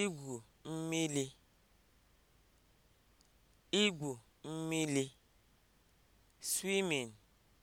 igwu mmiri igwu (swimming)